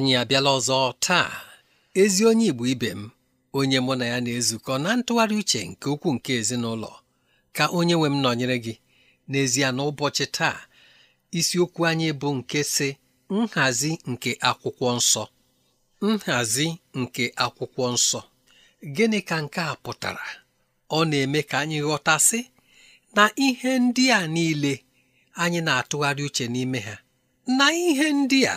anyị abịala ọzọ taa ezi onye Igbo ibe m onye mụ na ya na-ezukọ na ntụgharị uche nke ukwuu nke ezinụlọ ka onye nwe m nọnyere gị n'ezie n'ụbọchị taa isiokwu anyị bụ nke si nhazi nke akwụkwọ nsọ nhazi nke akwụkwọ nsọ gịnị ka nke a pụtara ọ na-eme ka anyị ghọtasị na ihe ndị a niile anyị na-atụgharị uche n'ime ha na ihe ndị a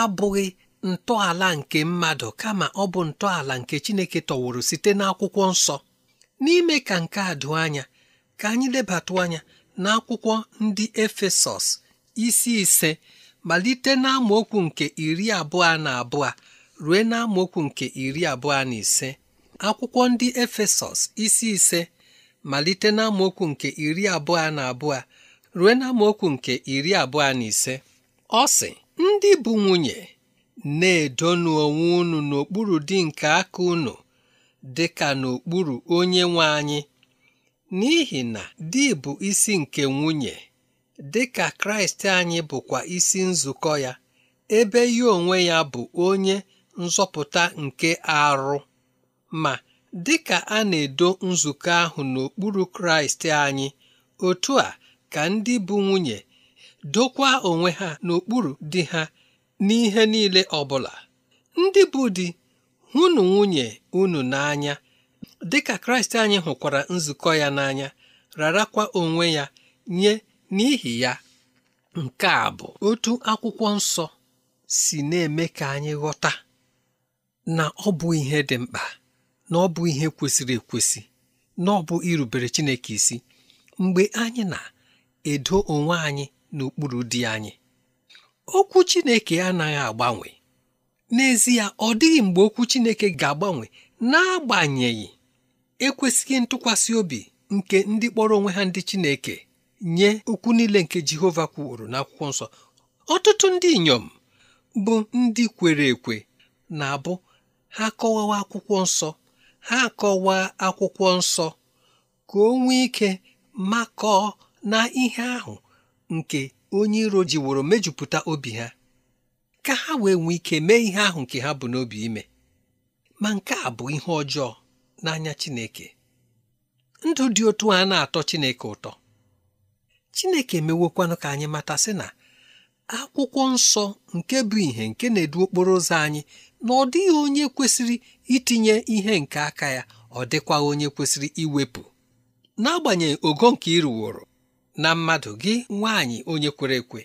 abụghị ntọala nke mmadụ kama ọ bụ ntọala nke Chineke tọwụrụ site n'akwụkwọ nsọ n'ime ka nke a doo anya ka anyị lebatụ anya n'akwụkwọ ndị Efesọs isi ise malite n'amaokwu nke iri abụọ na abụọ ruo n'amaokwu nke iri abụọ na ise akwụkwọ ndị Efesọs isi ise malite n'amaokwu nke iri abụọ na abụọ rue n'amaokwu nke iri abụọ na ise ọ sị ndị bụ nwunye na-edonu onwe unu n'okpuru dị nke aka unu dị ka n'okpuru onye nwe anyị n'ihi na di bụ isi nke nwunye dị ka kraịst anyị bụkwa isi nzukọ ya ebe ya onwe ya bụ onye nzọpụta nke arụ ma dị ka a na-edo nzukọ ahụ n'okpuru kraịst anyị otu a ka ndị bụ nwunye dokwa onwe ha n'okpuru dị ha n'ihe niile ọbụla ndị bụ di hụnụ nwunye unu n'anya dịka kraịst anyị hụkwara nzukọ ya n'anya rarakwa onwe ya nye n'ihi ya nke a bụ otu akwụkwọ nsọ si na-eme ka anyị ghọta na ọ bụ ihe dị mkpa na ọ bụ ihe kwesịrị ekwesị na ọ bụ irubere Chineke isi mgbe anyị na-edo onwe anyị n'okpuru dị anyị okwu Chineke anaghị agbanwe n'ezie ọ dịghị mgbe okwu Chineke ga-agbanwe n'agbanyeghị ekwesịghị ntụkwasị obi nke ndị kpọrọ onwe ha ndị Chineke nye okwu niile nke Jehova kwuru n'akwụkwọ nsọ ọtụtụ ndị inyom bụ ndị kwere ekwe na-abụ ha kọwawa akwụkwọ nsọ ha kọwaa akwụkwọ nsọ ka o nwee ike makọọ na ihe ahụ nke onye iro jiworo mejupụta obi ha ka ha wee nwee ike mee ihe ahụ nke ha bụ n'obi ime ma nke a bụ ihe ọjọọ n'anya Chineke ndụ dị otu a na-atọ Chineke ụtọ Chineke emewokwanụ ka anyị mata sị na akwụkwọ nsọ nke bụ ihe nke na-edu okporo ụzọ anyị na ọ dịghị onye kwesịrị itinye ihe nke aka ya ọ dịkwaghị onye kwesịrị iwepụ n'agbanyeghị ogo nke ịrụworo na mmadụ gị nwaanyị onye kwere ekwe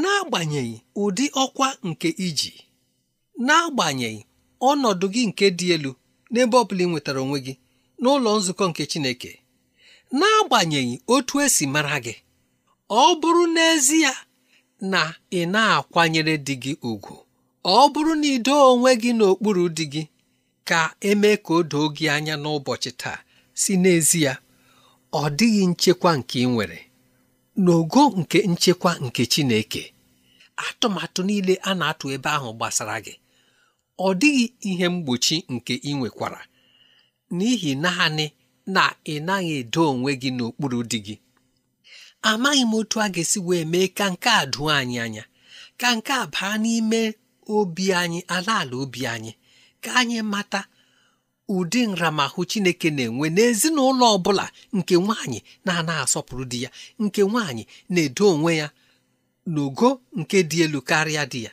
n'agbanyeghị ụdị ọkwa nke iji n'agbanyeghị ọnọdụ gị nke dị elu n'ebe ọ bụla ị nwetara onwe gị n'ụlọ nzukọ nke Chineke n'agbanyeghị otu esi mara gị ọ bụrụ n'ezie na ị na-akwanyere dị gị ugwu ọ bụrụ na ido onwe gị n'okpuru di gị ka emee ka o doo gị anya n'ụbọchị taa si n'ezie ọ dịghị nchekwa nke ị nwere n'ogo nke nchekwa nke Chineke atụmatụ niile a na-atụ ebe ahụ gbasara gị ọ dịghị ihe mgbochi nke ị nwekwara n'ihi naanị na ị naghị edo onwe gị n'okpuru dị gị amaghị m otu a ga-esi wee mee ka nke a doo anyị anya ka nke baa n'ime obi anyị ala ala obi anyị ka anyị mata ụdị nramahụ chineke na-enwe n'ezinụlọ ọ bụla nke nwaanyị na-ana asọpụrụ di ya nke nwaanyị na-edo onwe ya n'ogo nke dị elu karịa di ya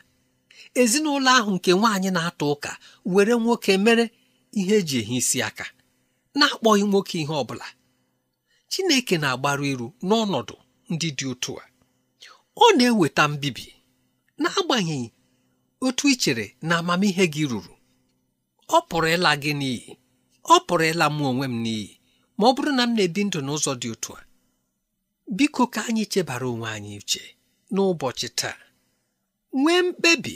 ezinụlọ ahụ nke nwaanyị na atụ ụka were nwoke mere ihe eji ehi isi aka na-akpọghị nwoke ihe ọ bụla chineke na-agbaru iru n'ọnọdụ ndị dị otu a ọ na-eweta mbibi n'agbanyeghị otu i chere na amamihe gị ruru ọ pụrụ ịla gị n'iyi ọ pụrụ ịla mụ onwe m n'iyi ma ọ bụrụ na m na-ebi ndụ n'ụzọ dị otu a biko ka anyị chebara onwe anyị uche n'ụbọchị taa nwee mkpebi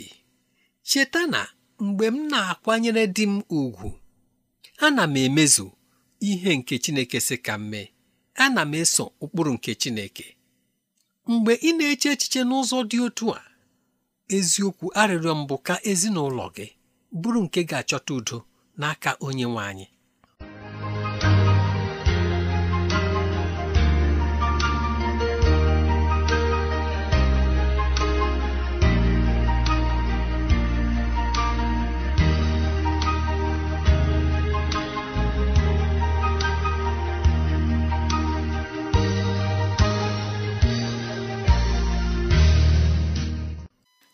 cheta na mgbe m na-akwanyere di m ugwu na m emezu ihe nke Chineke si ka m mee ana m eso ụkpụrụ nke Chineke mgbe ị na-eche echiche n'ụzọ dị otu a eziokwu arịrịọ mbụ ka ezinụlọ gị bụrụ nke ga-achọta udo n'aka onye nwe anyị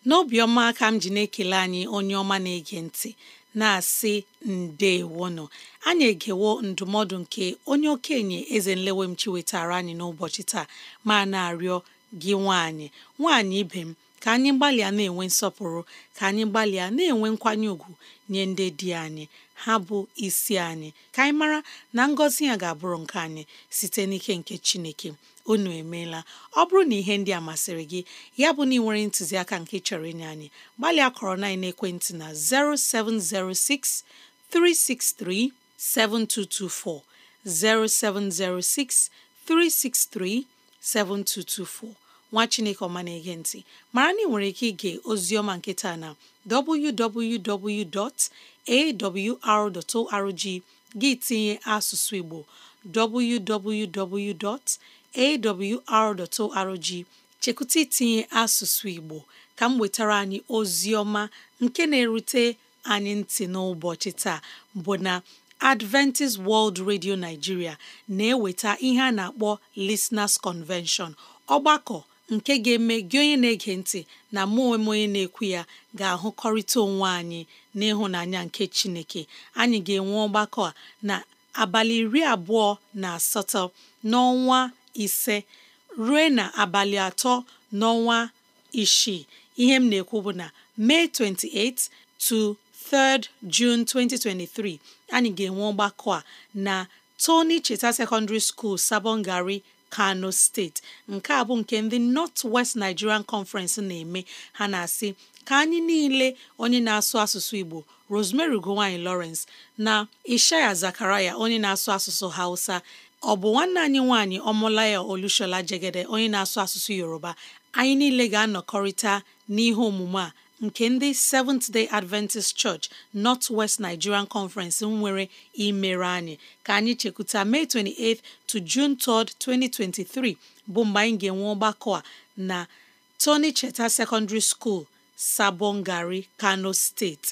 n'obiọma ka m ji na-ekele anyị onye ọma na-ege ntị na-asị ndewonụ anyị egewo ndụmọdụ nke onye okenye eze nlewemchi wetara anyị n'ụbọchị taa ma na-arịọ gị nwaanyị nwaanyị ibe m ka anyị gbalịa na-enwe nsọpụrụ ka anyị gbalịa na-enwe nkwanye ùgwù nye ndị di anyị ha bụ isi anyị ka anyị mara na ngọzi ya ga-abụrụ nke anyị site n'ike nke Chineke onu emela ọ bụrụ na ihe ndị a masịrị gị ya bụ na ị nwere ntụziaka nke chọrọ inye anyị gbalịa kọrọ na ekwentị na 0706 363 7224 0706 363 7224 nwa chineke ọma na-ege ntị mara na ị nwere ike ige oziọma nkịta na www.awr.org gị tinye asụsụ igbo www. awr.org chekwụta itinye asụsụ Igbo ka m wetara anyị ozi ọma nke na-erute anyị ntị n'ụbọchị taa bụ na Adventist World Radio Nigeria na-eweta ihe a na-akpọ Listeners Convention ọgbakọ nke ga-eme gị onye na-ege ntị na mụ onwe onye na-ekwu ya ga-ahụkọrịta onwe anyị n'ịhụnanya nke Chineke anyị ga-enwe ọgbakọ a na abalị iri abụọ na asatọ n'ọnwa ise ruo na abalị atọ n'ọnwa isii ihe m na-ekwu bụ na May 28 to 3 June 2023 anyị ga-enwe ọgbakọ a na Tony Cheta Secondary School, gari Kano steeti nke a bụ nke ndị North West Nigerian Conference na-eme ha na-asị ka anyị niile onye na-asụ asụsụ Igbo Rosemary Gowanyi Lawrence na Ishaya Zakaraya onye na-asụ asụsụ Hausa ọ bụ nwanne anyị nwaanyị ọmụlaya Olushola Jegede onye na-asụ asụsụ Yoruba anyị niile ga-anọkọrịta n'ihe omume a nke ndị Seventh Day Adventist Church North West Nigerian Conference nwere imere anyị ka anyị chekwuta May 28 to June 3, 2023 bụ mgbe anyị ga-enwe ọgbakọ a na Tony Cheta Secondary School, Sabongari, Kano State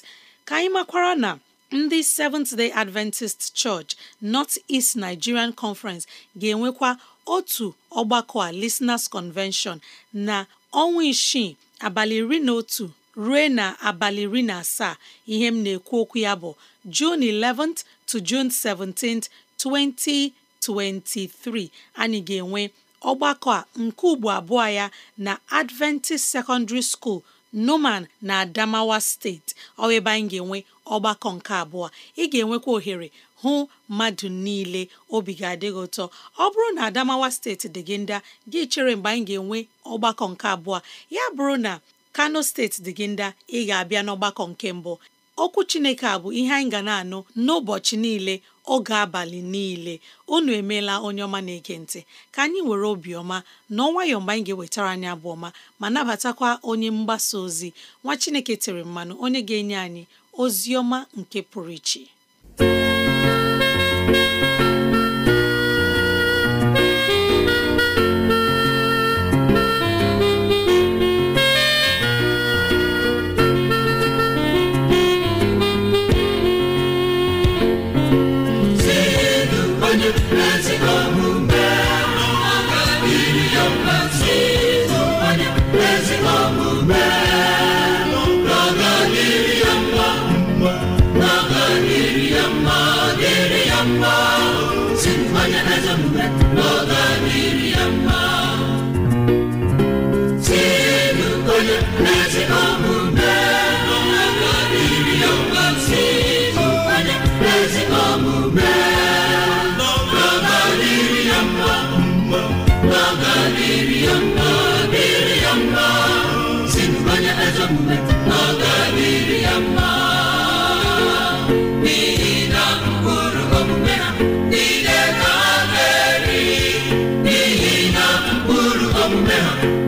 ka anyị makwara na ndị Seventh Day Adventist Church North East Nigerian Conference ga-enwekwa otu ọgbakọ a Listeners Convention na ọnwa isii abalị iri na otu ruo na abalị iri na asaa ihe m na-ekwu okwu ya bụ June 11th to June 17th 2023 anyị ga-enwe ọgbakọ a nke ugbo abụọ ya na Adventist Secondary School. noman na Adamawa steeti ọ anyị ga-enwe ọgbakọ nke abụọ ị ga-enwekwa ohere hụ mmadụ niile obi ga adịghị ụtọ ọ bụrụ na Adamawa steeti dị gị ndị gị chere mgbe anyị ga-enwe ọgbakọ nke abụọ ya bụrụ na Kano steeti dị gị ndị ị ga-abịa n'ọgbakọ nke mbụ okwu Chineke a bụ ihe anyị ga na-anụ n'ụbọchị niile oge abalị niile unu emeela onye ọma na-ege ntị ka anyị were obiọma na nwayọọ mgbe anyị ga-ewetara anyị abụ ọma ma nabatakwa onye mgbasa ozi nwa Chineke tere mmanụ onye ga-enye anyị ozi ọma nke pụrụ iche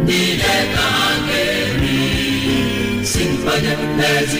niile ka ha ga-eri si mkpanye mmezi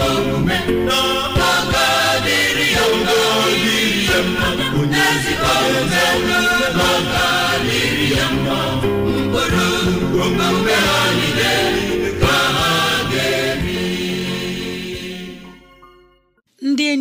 omume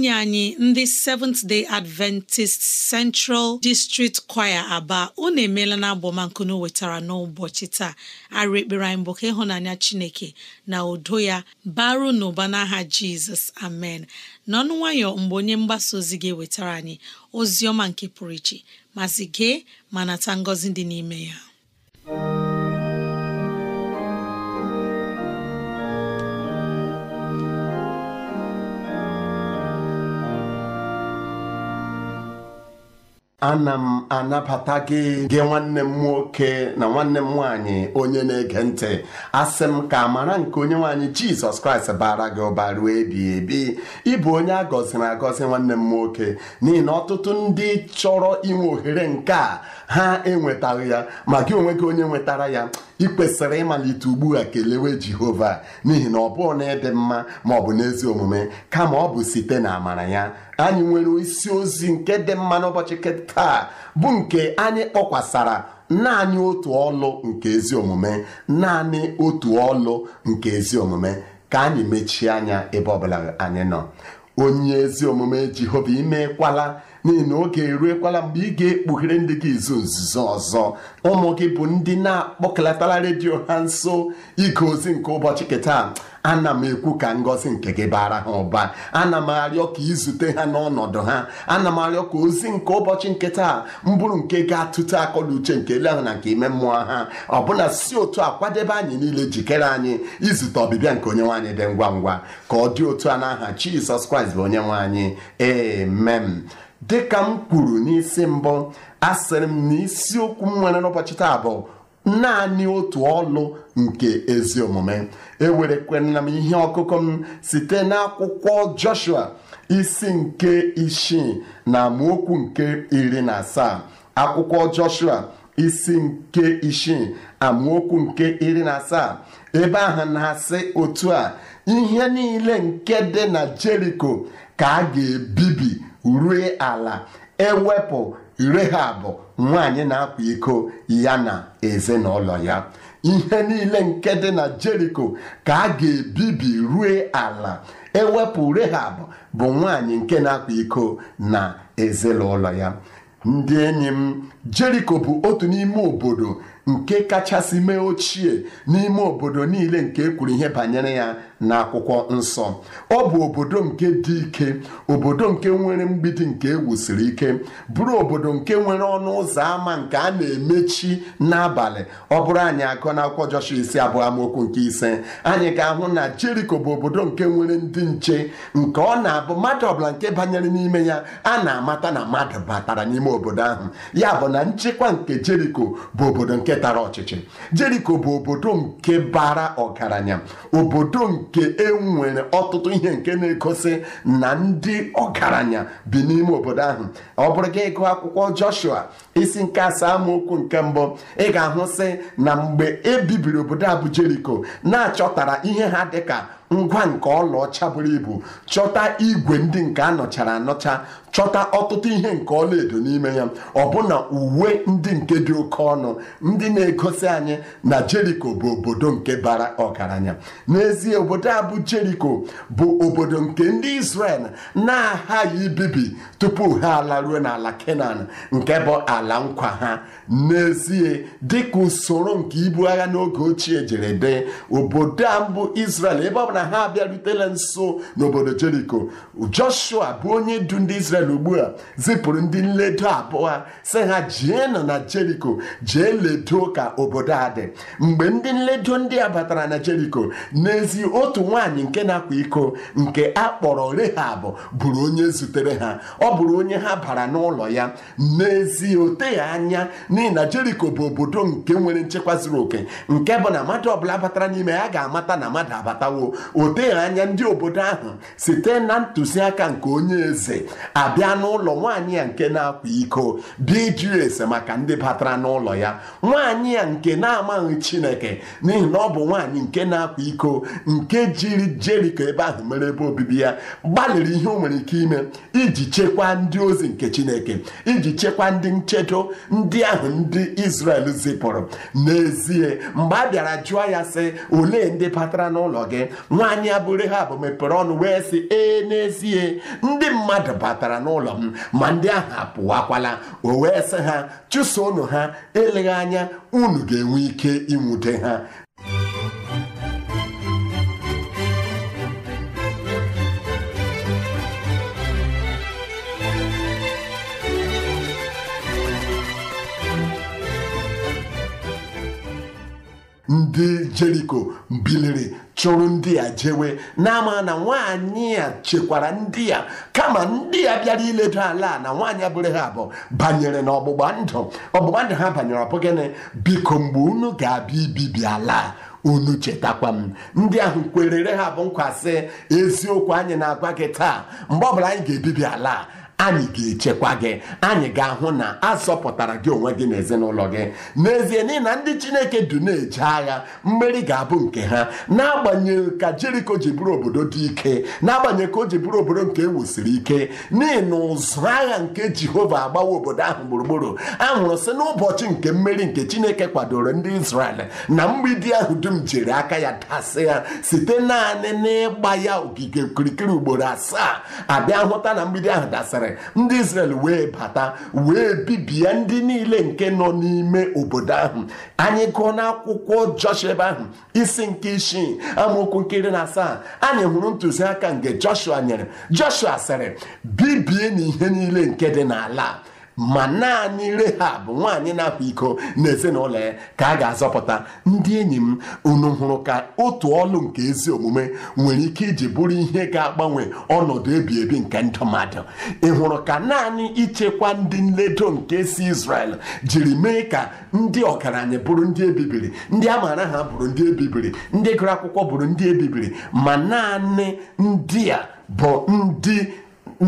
enyi anyị ndị Seventh Day Adventist Central District Choir Aba unu emeela na abọmankunu wetara n'ụbọchị taa arụ ekpere anyị bụ ka ịhụnanya Chineke na udo ya baru n'ụba n'aha Jizọs amen n'ọnụ nwayọ mgbe onye mgbasa ozi gị wetara anyị ozi ọma nke pụrụ iche mazi gee ma nata ngọzi dị n'ime ya ana m anabata gị nwanne m nwoke na nwanne m nwaanyị onye na-ege ntị asị m ka amara nke onye nwaanyị jizọs kraịst bara gị ụba ruo ebi ebi ịbụ onye a agọzi nwanne m nwoke n'ihi na ọtụtụ ndị chọrọ inwe ohere nke a ha enwetaghị ya ma gị onwe gị onye nwetara ya ị kwesịrị ịmalite ugbu a kelewe Jehova n'ihi na ọ bụghị na ịdị mma ma ọ bụ n'ezi omume kama ọ bụ site na amara ya anyị nwere isi ozi nke dị mma n'ụbọchị taa bụ nke anyị kpọkwasara naanị otu ọlụ nke ezi omume naanị otu ọlụ nke ezi omume ka anyị mechie anya ebe ọbụla anyị nọ onye ezi omume Jehova imekwala n'ihi na oge eruekwala mgbe ị ga-ekpughere ndị gị izu nzuzo ọzọ ụmụ gị bụ ndị na-akpọkọlatara redio ha nso ige ozi nke ụbọchị kịta ana m ekwu ka ngọzi nke gị bara ha ụba ana m arịọ ka izute ha n'ọnọdụ ha ana m arịọ ka ozi nke ụbọchị nke taa mbụrụ nke ga-atụte akọla uche nke ele ahụ na nke ime mmụọ ha ọbụna si otu a kwadebe anyị niile jikere anyị izute ọbịbịa nke onye nwaanyị dị ngwa ngwa ka ọ dị otu a n'aha Jizọs Kraịst bụ onye nwaanyị amen dịka m kwuru n'isi mbụ asịrị m na m nwere n'ụbọchị taa bụ naanị otu ọlụ nke ezi omume e m ihe ọkụkọ m site n'akwụkwọ Joshua isi nke isii na amaokwu nke iri na asaa akwụkwọ Joshua isi nke isii amaokwu nke iri na asaa ebe ahụ na-asị otu a ihe niile nke dị na Jeriko ka a ga-ebibi rue ala ewepụ Rehab nwanyị na-akwa iko ya na ezinụlọ ya ihe niile nke dị na Jeriko ka a ga-ebibi rue ala ewepụ Rehab bụ nwanyị nke na-akwa iko na ezinụlọ ya ndị enyi m Jeriko bụ otu n'ime obodo nke kachasị mee ochie n'ime obodo niile nke ekwuru ihe banyere ya n'akwụkwọ nsọ ọ bụ obodo nke dị ike obodo nke nwere mgbidi nke ewusiri ike bụrụ obodo nke nwere ọnụ ụzọ ámá nke a na-emechi n'abalị ọ bụrụ anyị akọ na akwụkwọ Joshua isi abụọ amaokwu nke ise anyị ga-ahụ na Jeriko bụ obodo nke nwere ndị nche nke ọ na-abụ mmadụ ọbụla nke banyere n'ime ya a na-amata na mmadụ batara n'ime obodo ahụ ya bụ na nchekwa nke Jeriko bụ obodo nke tara ọchịchị Jeriko bụ obodo nke bara ọgaranya obodo nke nke e nwere ọtụtụ ihe nke na-egosi na ndị ọgaranya bi n'ime obodo ahụ ọ bụrụ gị ịgụ akwụkwọ Joshua isi nke asaa amaokwu nke mbụ ị ga-ahụsị na mgbe e bibiri obodo abu na-achọtara ihe ha dịka ngwa nke ọlaọcha buru ibu chọta igwe ndị nke anọchara anọcha chọta ọtụtụ ihe nke ọlaedo n'ime ya ọbụna uwe ndị nke dị oke ọnụ ndị na-egosi anyị na Jeriko bụ obodo nke bara ọgaranya n'ezie obodo a bụ Jeriko bụ obodo nke ndị Israel na-aghaghị ibibi tupu ha alaruo n'ala Kenan nke bụ ala nkwa ha n'ezie dịka usoro nke ibu agha n'oge ochie jere dị obodo a mbụ Israel ebe ọbụla na ha abịarutela nso n'obodo jeriko joshua bụ onye du ndị israel ugbu a zipụrụ ndị nledo abụọ si ha jienụ na jeriko jee ledo ka obodo a dị mgbe ndị nledo ndị a batara na jeriko n'ezi otu nwaanyị nke na-akwa iko nke a kpọrọ rehab bụrụ onye zutere ha ọ bụrụ onye ha bara n'ụlọ ya n'ezi oteghị anya n'ihi na jeriko bụ obodo nke nwere nchekwa zuru oke nke bụ na mmadụ ọbụla batara n'ime ya ga-amata na mmadụ abatawo o anya ndị obodo ahụ site na ntụziaka nke onye eze abịa n'ụlọ nwaanyị ya nke na-akwa iko dị iju ese maka ndị batara n'ụlọ ya nwaanyị ya nke na-amaghị chineke n'ihi na ọ bụ nwaanyị nke na-akwa iko nke jiri jeriko ebe ahụ mere ebe obibi ya gbalịrị ihe o nwere ike ime iji chekwaa ndị ozi nke chineke iji chekwaa ndị nchedo ndị ahụ ndị Israel zipụrụ n'ezie mgbe a bịara jụọ ya sị olee ndị batara n'ụlọ gị nwaanyị abụrụ ha bụ mepere ọnụ wee sị ee n'ezie ndị mmadụ batara n'ụlọ m ma ndị ahụ apụwakwala o wee sị ha chụsonụ ha eleghị anya unu ga-enwe ike ịnwute ha ndị jeriko biliri chụrụ ndị a jewe na na nwaanyị a chekwara ndị a kama ndị a bịara iledo ala na nwaanyị abụrụ ha abụọ banyere na ọgbụgba ndụ ọgbụgba ndụ ha banyere ọbụ gịnị biko mgbe unu ga-abịa ibibi ala unu chetakwa m ndị ahụ kwerere ha bụ nkwasị eziokwu anyị na-agwa gị taa mgbe ọbụla anyị ga-ebibi ala anyị ga-echekwa gị anyị ga-ahụ na azọpụtara gị onwe gị na ezinụlọ gị n'ezie n'ihi na ndị chineke du na-eje agha mmeri ga-abụ nke ha n'agbanyeghị ka jeriko ji bụrụ obodo dị ike n'agbanyeghị ka o ji bụrụ obodo nke ewusiri ike n'ihi na ụzụ agha nke jehova agbawa obodo ahụ gburugburu anwụrụ si n'ụbọchị nke mmeri nke chineke kwadoro ndị Izrel na mgbidi ahụ dum jiri aka ya dasị ya site naanị n'ịgba ya ogige okirikiri ugboro asaa abịa hụta na mgbidi ahụ dasịrị ndị Israel wee bata wee bibie ndị niile nke nọ n'ime obodo ahụ anyị gụọ n'akwụkwọ Joshua ahụ isi nke isii amaokwu nke iri na asaa anyị hụrụ ntụziaka nke Joshua nyere Joshua sịrị bibie n'ihe niile nke dị n'ala ma naanị rehab nwaanyị na-akwa iko na ezinụlọ ya ka a ga-azọpụta ndị enyi m unu hụrụ ka otu ọlụ nke ezi omume nwere ike iji bụrụ ihe ga-agbanwe ọnọdụ ebi ebi nke ndụ mmadụ ị hụrụ ka naanị ichekwa ndị nledo nke si Izrel jiri mee ka ndị ọgaranya bụrụ ndị ebibiri ndị a maara ha bụrụ ndị ebibiri ndị gụrụ akwụkwọ bụrụ ndị ebibiri ma naanị ndị a bụ ndị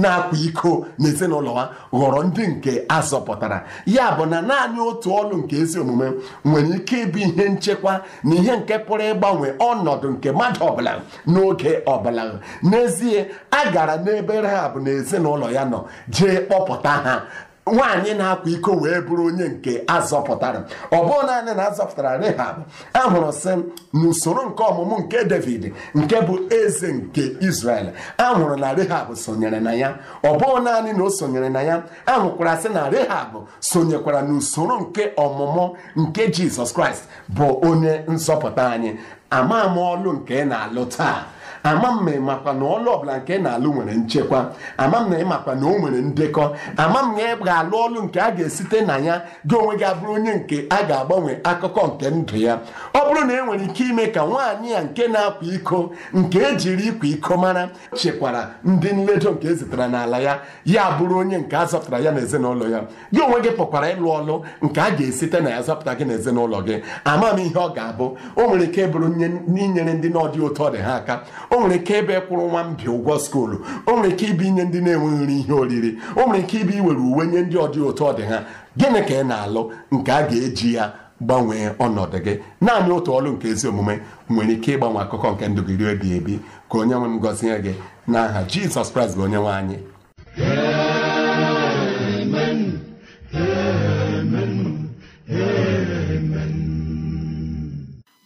na-akwa iko n'ezinụlọ ha ghọrọ ndị nke a zọpụtara ya bụ na naanị otu ọlụ nke ezi omume nwere ike ịbụ ihe nchekwa na ihe nke pụrụ ịgbanwe ọnọdụ nke mmadụ ọbụla n'oge ọbụla n'ezie a gara n'ebe Rahab na ezinụlọ ya nọ jee kpọpụta ha nwaanyị na-akwa iko wee bụrụ onye nke azọpụtara ọ bụghị naanị na azọpụtara Rehab ahụrụ sị n'usoro nke ọmụmụ nke David nke bụ eze nke Israel ahụrụ na Rehab sonyere na ya ọ bụghị naanị na o sonyere na ya ahụkwara sị na Rehab sonyekwara n'usoro nke ọmụmụ nke Jizọs Kraịst bụ onye nzọpụta anyị ama m ọlụ nke ị na-alụ taa ama m na ịmakwa na ọlụ ọbụla nke na-alụ nwere nchekwa ama m na ịmakwa na o nwere ndekọ ama m na ị ga-alụ ọlụ nke a ga-esite na ya gị onwe gị abụrụ onye nke a ga-agbanwe akụkọ nke ndụ ya ọ bụrụ na e nwere ike ime ka nwaanyị ya nke na-akwa iko nke ejiri ịkwa iko mara chekwara ndị nledo nke e zitere n'ala ya ya bụrụ onye nke a zọpụtara ya na ezinụlọ ya gị onwe gị pụkwara ịlụ ọlụ nke a ga-esite na ya zọpụta gị na ezinụlọ gị ama m ihe ọ ga-abụ o nwere ike bụrụ inyere ndị n'ọdị ụtọ dị ha aka o nwere ike ịbịa kwụrụ nwa mbi ụgwọ skuulu o nwere ike ịbụ inye ndị na-enweghị nri ihe oriri o nwere ike ịbụ iwere uwe nye ndị ọdị ụtọ dị ha gịnị ka ị na-alụ nke a ga-eji ya gbanwee ọnọdụ gị naanị otu ọlụ nke ezi omume nwere ike ịgbanwe akụkọ nke ndụ gị ruo ebi ka onye nwe m gọzie gị n'aha Jizọs Kraịst bụ onye nwe anyị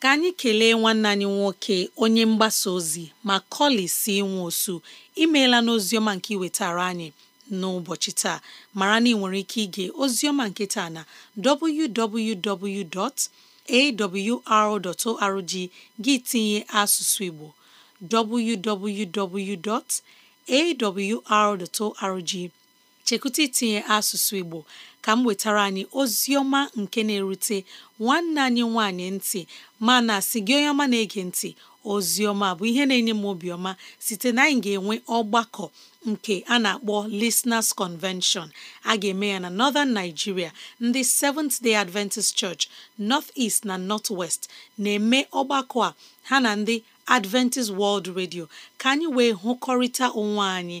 ka anyị kelee nwanne anyị nwoke onye mgbasa ozi ma si nwe osu imeela n'oziọma nke iwetara anyị n'ụbọchị taa mara na ị nwere ike ige ozioma nke taa na www.awr.org gị tinye asụsụ Igbo www.awr.org chekwuta itinye asụsụ Igbo ka m wetara anyị ozi ọma nke na-erute nwanne anyị nwanyị ntị mana si gị onye ọma na-ege ntị ozi ọma bụ ihe na-enye m obiọma site na anyị ga-enwe ọgbakọ nke a na-akpọ Listeners Convention a ga-eme ya na Northern Nigeria ndị Seventh-day Adventist Church North East na North West na-eme ọgbakọ a ha na ndị Adventist World Radio ka anyị wee hụkọrịta onwe anyị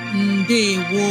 ndewo